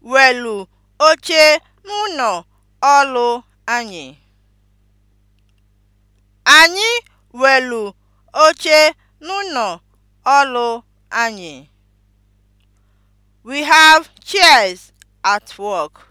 anyị. welu oche n'ụlọ ọlụ anyị. We have chairs at work.